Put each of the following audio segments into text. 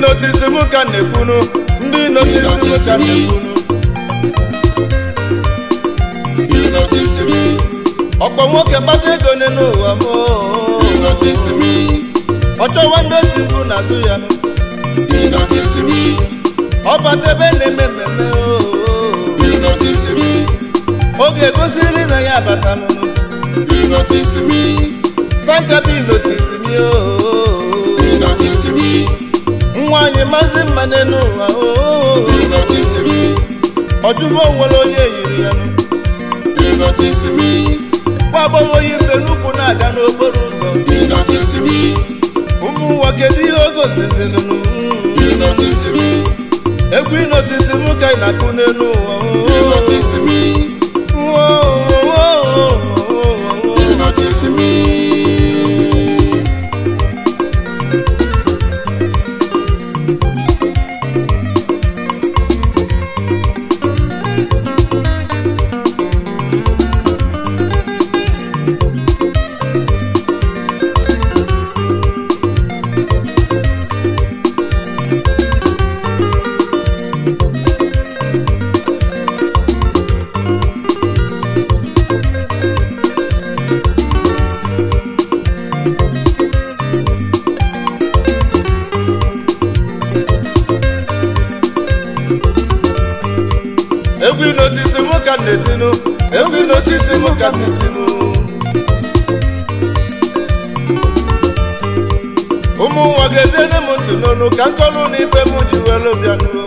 notisi m ka na ndị notisi m ka na-ekwunu ọkpọ nwoke kpata ego ne n'ụwa m ọ chọwa ndị oti mbụ n'azụ ya ọ bata ebe na-eme mmemme oge egosiri na ya abata n'ụlọ sanchabi notisi ooo nwaanyị maazị mma n'ụwa ụwa ojubo nwere onye yiri ya nwa agbọghọ onye mgbe n'ukwu na-aga n'okporo ụzọ ụmụ ụwa kedu ihe oge osisi n'ụwa na-etinu n'osisi m ka m ụmụ nwa ga-etene m ntị ka na m ji were bịanụ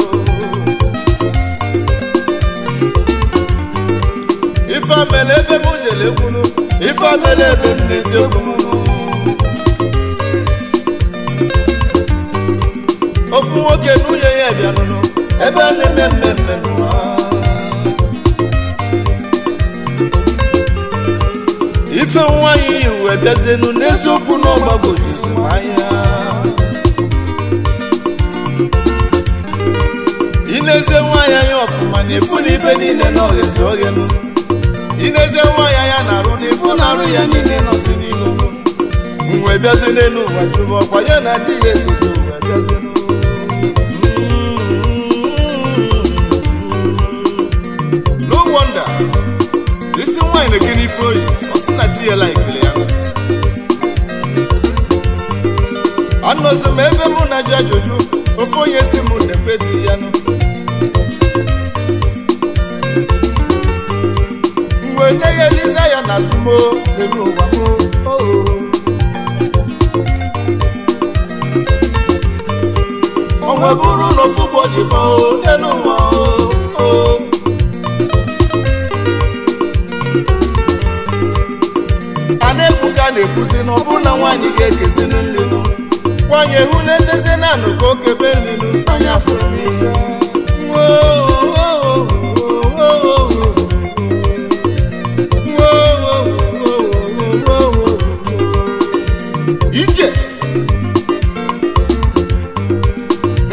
ife ebe m ekwunu ife ebe m na okwu m ofu nwoke na nwunye ya bịanụnụ ebe a ife nwaanyị wee bịazienu n'eziokwu na ọgbagoro izumahịa ineze nwanyị anya ọfụma na ifu na ife niile n'oghezi oghenu ineze nwaanyị anya na-arụ na ifu na-arụ ya niile nọzi n'ilu mwe bịazi n'elu ụwa jụrụ ọkwa ya na dị ya ezozi ụwa bịazienu no wonder isi nwanyị na eke n'ife oyi isi ya ebe mụ na ji ajụjụ ofe onye si m na di ya nụ mgbe nye ya eliza ya na azụmo n'elu ụwa m onwe bụrụ na ofu bụ ọdịfọ n'elu ụwa o a na-ekwuzi na ọbụna nwaanyị ga-ekezinu nlinu nwaanyị ehu na-etezi na anụ ka okebe nlinu anya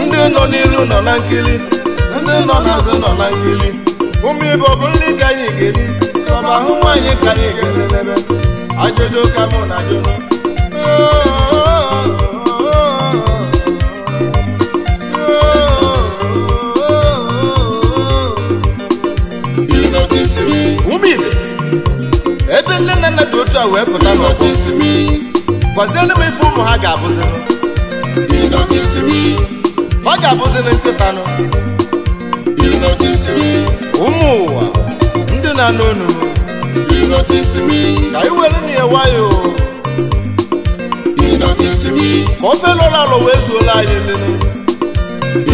ndị nọ ndị nọ n'azụ nọ na ọ bụ nri ka anyị ga-eri ka ọ bụ ahụ ajụjụ ka mụ na ajụjụ Umu ile? ebe nne na nna dị otu a wee pụta gwaziere m ife ụmụ ha ga-abụzi ọ ga-abụzili nkịtanụ ụmụ ụwa ndị na-anụ onunu notice me ka na ya wayo you notice me ọrụ ofe anyị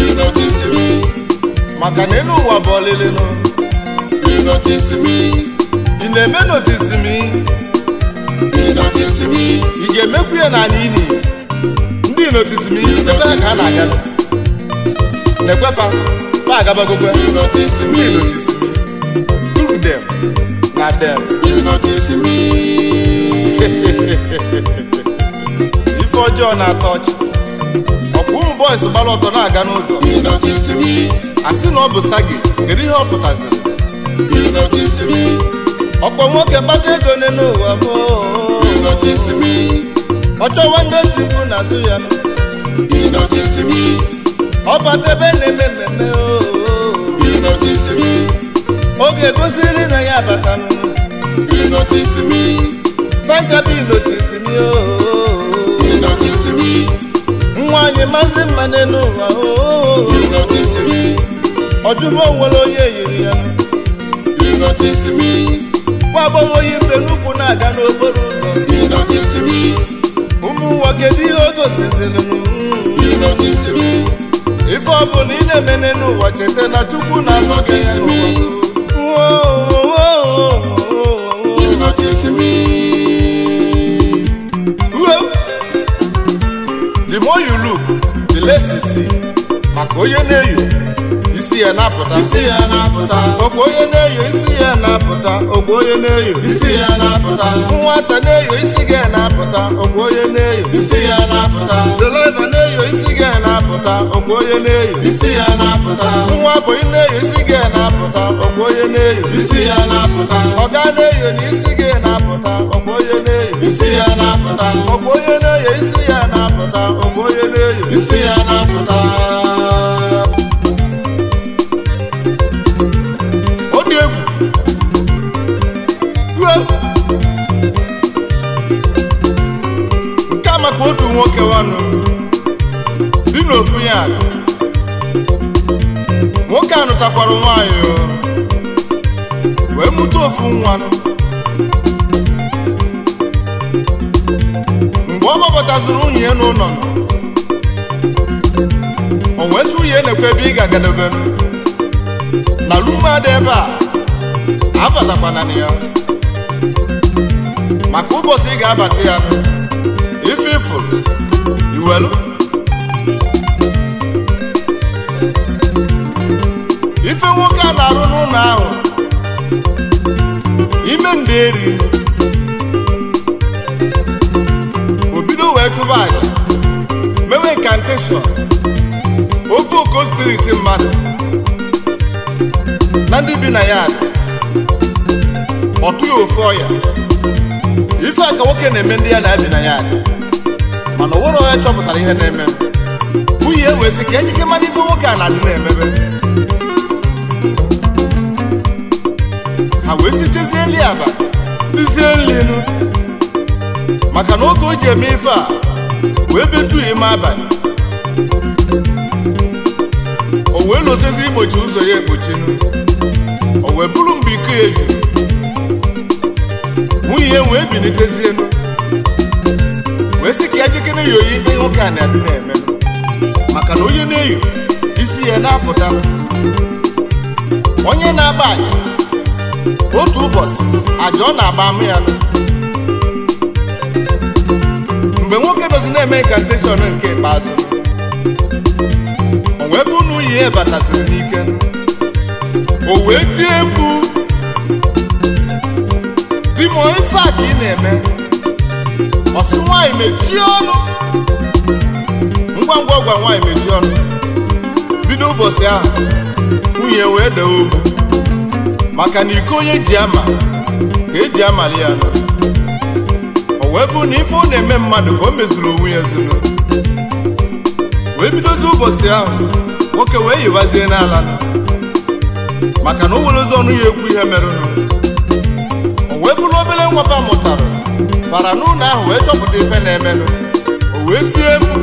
maka na bụ notice me ị na-eme notice me you notice me ga-emekwu ya na n'ihi ndị notice me ebe a ka na-aga na-ekwefa fa agabagokwe you notice me notice na them ọjọọ na-atọ ọchị ọkwa ụmụ bọis gbara ọtọ na-aga n'ụzọ asị na ọ bụ sagi kedu ihe ọ pụtaziri Ọkpọ nwoke kpata ego n'elu ụwa m oh, oh, oh. ọ chọwa ndị ntị mkpu n'azụ ya ọ bata ebe na-eme mmemme oge gosiri na ya bata abata fanchabi notisimi ooo nwaanyị mmanụ mma n'elu ụwa oh, oh, oh, ọjụbụ onwere onye yiri ya nwa agbọghọ oyi mbe n'ukwu na-aga n'okporo ụzọ ụmụ ụwa kedu ihe o gosiziri ife ọ bụ na ị na-eme n'elu ụwa cheta na Chukwu na-anọ gị n'ụwa osisi maka onye na-eyo isi ya na-apụta isi na-apụta ogbe onye na-eyo isi ya na-apụta ogbe onye na-eyo isi ya na-apụta nwata na-eyo isi ga na-apụta ogbe onye na-eyo isi ya na-apụta deliva na-eyo isi ga na-apụta ogbe onye na-eyo isi ya na-apụta nwa bụi na-eyo isi ga na-apụta ogbe onye na-eyo isi ya na-apụta ọga na-eyo na isi ga na-apụta ogbe onye na-eyo isi ya na-apụta ogbe onye na-eyo isi ya na-apụta onye. isi ya na-apụta ọ egwu nke a maka otu nwoke wanụ bi n'ofu ya nwoke anụtakwara nwanyị nwaanyị wee mụta ofu nwanụ mgbe ọ gbapụtaziri nwunye ya n'ụlọ ihe na-ekwe ebe ị ga-agadobe m na lumada ebe a abatakwana na ya maka ụbọchị ị ga-abata ya ife ifuru iwelu ife nwoke a na-arụ n'ụlọ ahụ ime nde eri o bido wee chụba aja mewe nkanteshọn ofe oko spiriti mmadụ na ndị bi na ya ọtụ ya ofe ọya ife a ka nwoke na-eme ndị ya na bi na ya mana ọwụrụ ọya chọpụtara ihe na-eme nwunye wee sị ka ejike mara ife nwoke a na-adị na-emebe ha wee si chesie nri aba rizie nri enu maka na oge o ji eme ife a wee betu ime abalị ozizi igbochi ụzọ ya egbochinu o wee bụrụ mgbe ike eji juru nwunye ya wee bilitezienu wee sị ka ya jikere ya oyi ife nwoke a na-adị na-eme maka na onye na eyo isi ya na-apụta onye na-aba aja otu ụbọchị aja ọ na-aba ama ya mgbe nwoke dozi na-eme incantation nke ikpeazụ ihe bataziri n'ike o wee tie mkpu di m ife a ka ị na-eme ọsị nwaanyị mechie ọnụ ngwa ngwa gwa nwaanyị mechie ọnụ bido ụbọchị ahụ nwunye wee dee ogwu maka na iko onye ji ama ka eji amali ya nọ o wee bụ na ife ọ na-eme mmadụ ka o mezuru onwe ya ezinụlọ wee bidozi ụbọchị ahụ nwoke wee yiwazie n'ala maka na o nwere ụzọ ọnụ ya ekwu ihe merụnụ o wee bụrụ obere nwata mụtara bara n'ụlọ ahụ wee chọpụta ife na-emenụ o wee tire mkpu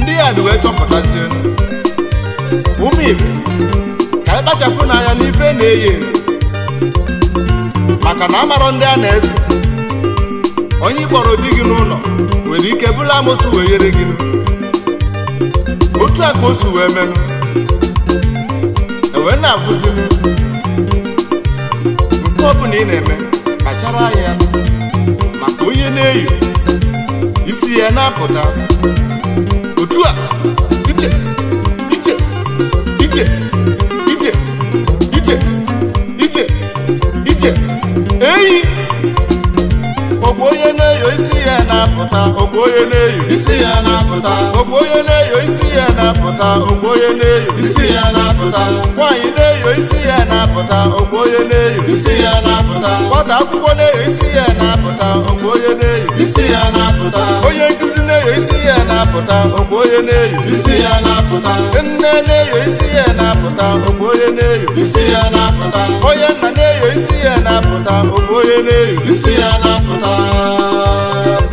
ndị ya dị wee chọpụtazie ụmụ ibe ka anyị kpachapụ n'anya n'ife na-eyi maka na amarọ ndị a na-ezi onye ị di gị n'ụlọ nwere ike bula amụsụ wee yere gị amosu wee menụ ewee na-akụzili nke ọbụla ị na-eme kpachara anya maka onye na-eyi isi ya na-apụta otu a ije ije ije ije ije ije ije eyi ọbụ onye na-eyo isi ya na-apụta ọbụ onye na-eyo isi ya na-apụta ọbụ onye na-eyo isi ya na-apụta ogbo onye na-eyo isi ya na-apụta nwaanyị na-eyo isi ya na-apụta ogbo onye na-eyo isi ya na-apụta nwata akwụkwọ na-eyo isi ya na-apụta ogbo onye na-eyo isi ya na-apụta onye nkụzi na-eyo isi ya na-apụta ogbo onye na-eyo isi ya na-apụta nne na-eyo isi ya na-apụta ogbo onye na-eyo isi ya na-apụta onye nna na-eyo isi ya na-apụta ogbo onye na-eyo isi ya na-apụta